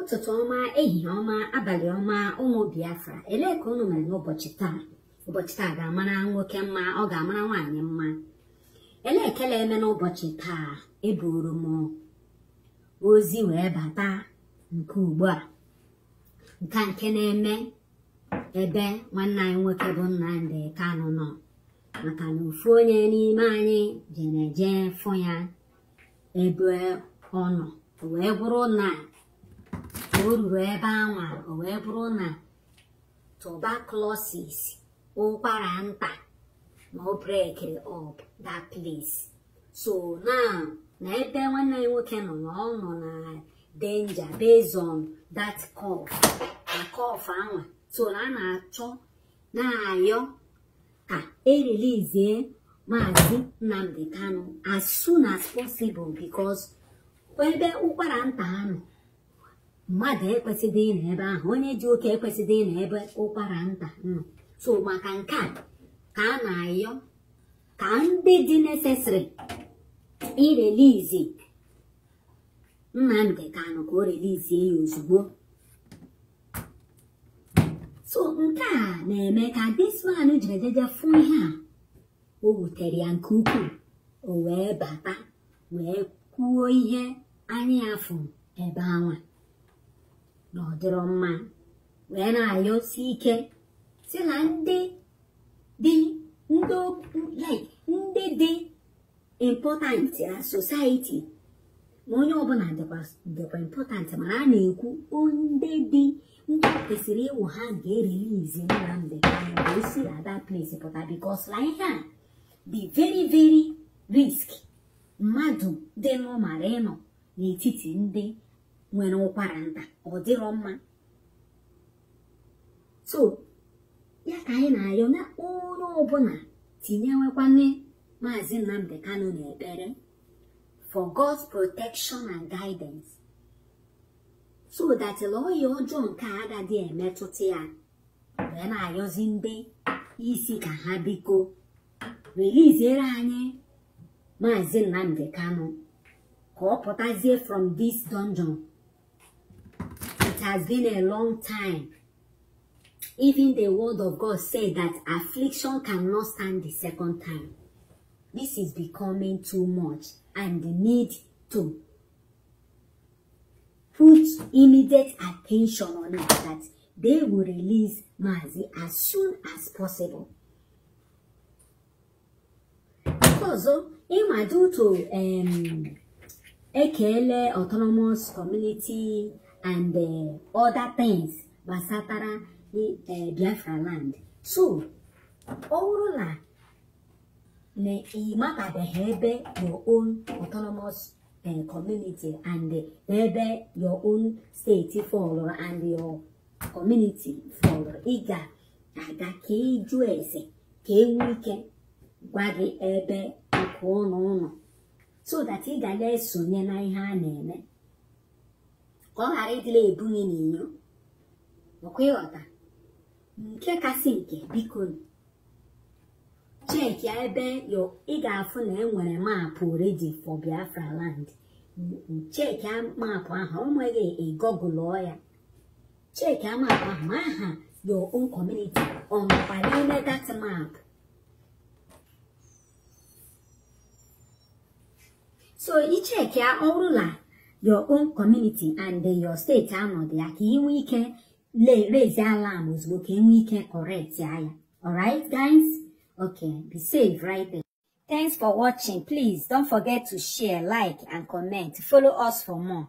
ụtụtụ ọma ehihie ọma abalị ọma ụmụ biafra elee ka unu mere n'ụbọchị taa ụbọchị taa ga-amara nwoke mma ọ ga-amara nwaanyị mma elee ekele eme n'ụbọchị taa eburu m ozi wee bata nke ugbu a nke nke na-eme ebe nwanne anyị nwoke bụ Nnamdi kanụ nọ maka na ofu onye n'ime anyị jere jee fụ ya ebe ọ wee gwụrụ nna. o ruru ebe anwa o wee bụrụ na tuberculosis ụkwara nta na o brekiri up that place so now na ebe nwanne ya nwoke nọ na ọ nọ na denja based on that cough na cough anwa so na a na-achọ na-ayọ ka erelizie maazị nnamdi kanu as soon as possible because ebe ụkwara nta ha nọ mmadụ ekwesịdị ịnọ ebe ahụ onye ji oke ekwesịdị ịnọ ebe ụkwara nta nọ so maka nke a ka a na-ayọ ka ndị dị necessary irelizi Nnamdi Kanu ka o relizie ya ozugbo so nke a na-eme ka dismanụ jiri ejeje fụ ihe a o wutere ya nke ukwuu o wee bata wee kwuo ihe anyị fụ ebe anwa na mma wee na-ayọsi ike si na ndị dị ndị dị important na society ma onye ọbụla dịkwa important mana a na-ekwu ndị dị ndị kwesịrị ịwụ ha ga-erelizi Nnamdi Kanu ka o ada place pụta because na ihe a dị very very risk mmadụ dị n'ụmara ịnọ n'etiti ndị nwere ụkwara nta ọ dịrọ mma so ya ka anyị na-arịọ na onye ọbụla tinyewekwane maazị Nnamdi Kanu n'ekpere for God's protection and guidance so that ọhịa ọjọọ nke agadi emetụta ya wee na ayọzi ndị isi ka ha biko reliziere anyị maazị Nnamdi Kanu ka ọ pụtazie from this dungeon has been a long time. Even the word of God said that affliction cannot stand the second time. This is becoming too much and need to put immediate attention on it that they will release Mazi as soon as possible. Also, oh, in my due to um, Ekele Autonomous Community and uh, other things gbasatara eh, Biafra land so ọ na na ịmatabeghị ebe your own autonomous eh, community and eh, ebe your own steeti fọlụ and your community fọlụ ị ga-aga ka ịjụ eze ka enwe ike gwa gị ebe nke ụlọ ụlọ so that ị ga na-esonye na ihe a na-eme ka ọ ghara ịdịla ebu gị n'inyo ọkwa ịghọta nke kasị nke biko cheekịa ebe ị ga-afụ na enwere maapụ redi for biafra land cheekịa maapụ ahụ o nweghị ịgọgụlụ ya cheki maapụ ahụ ma aha your own community ọ n'ime so icheki ọ your own community and your steeti anọdụ ya ka ị nwee ike raise alarm ozugbo ka ị nwee ike correct ya ya alright guys okay be safe right there. Thanks for watching. Please don't forget to share, like, and comment. Follow us for more.